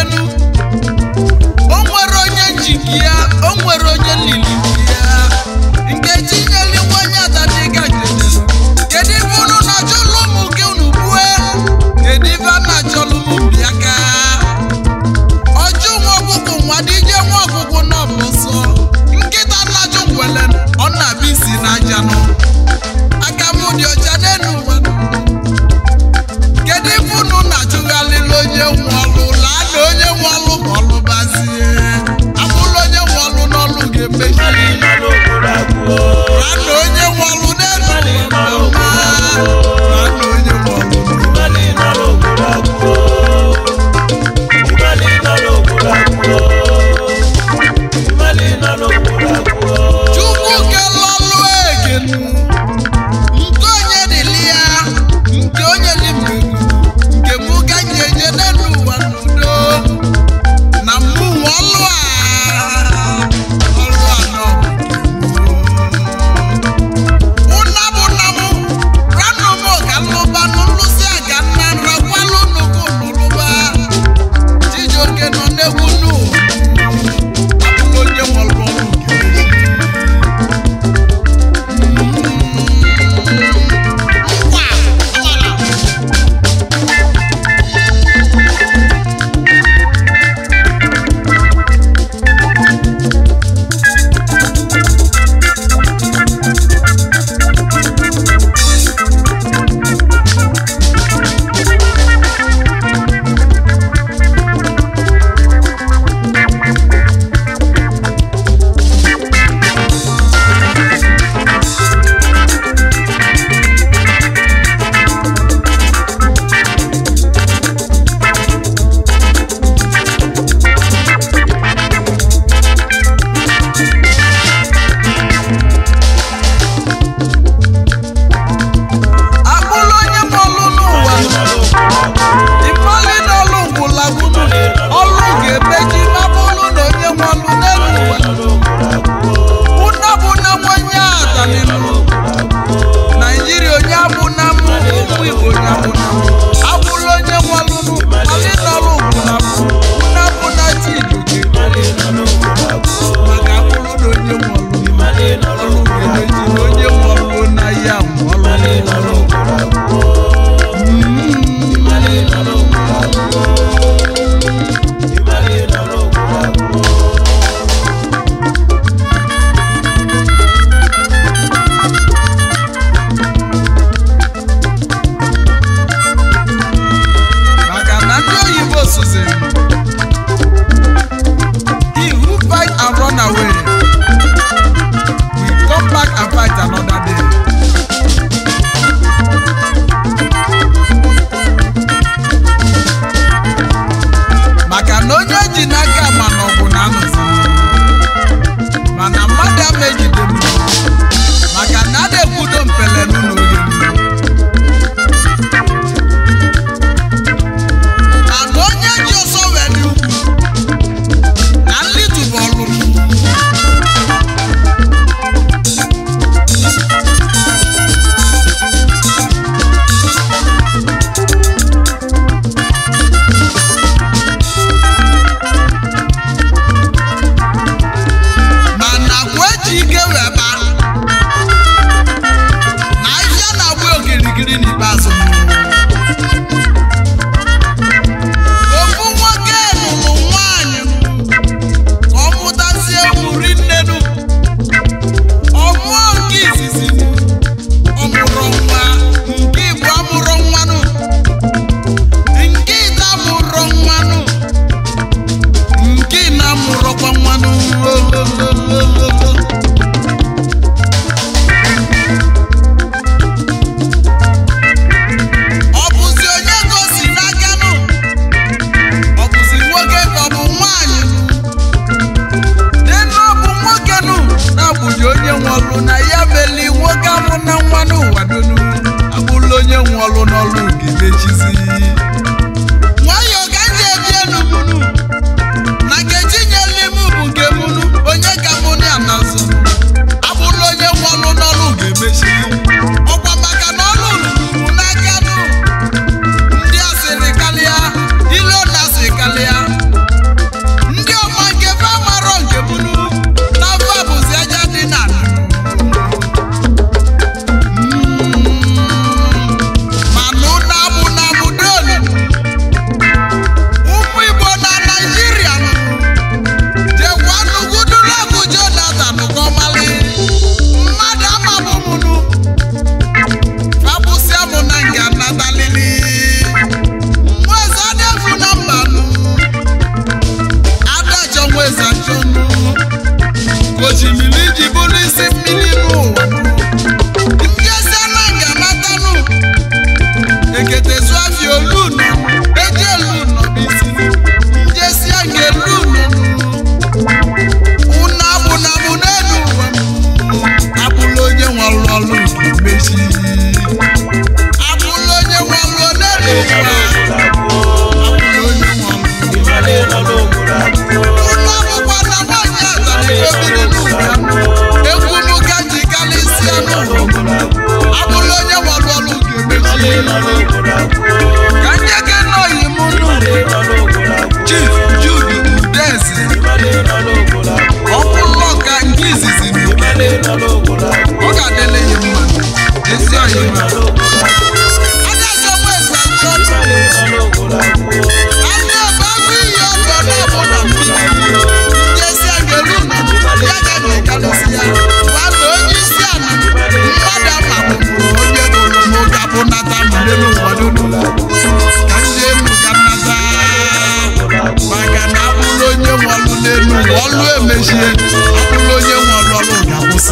enu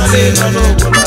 I no, no, no.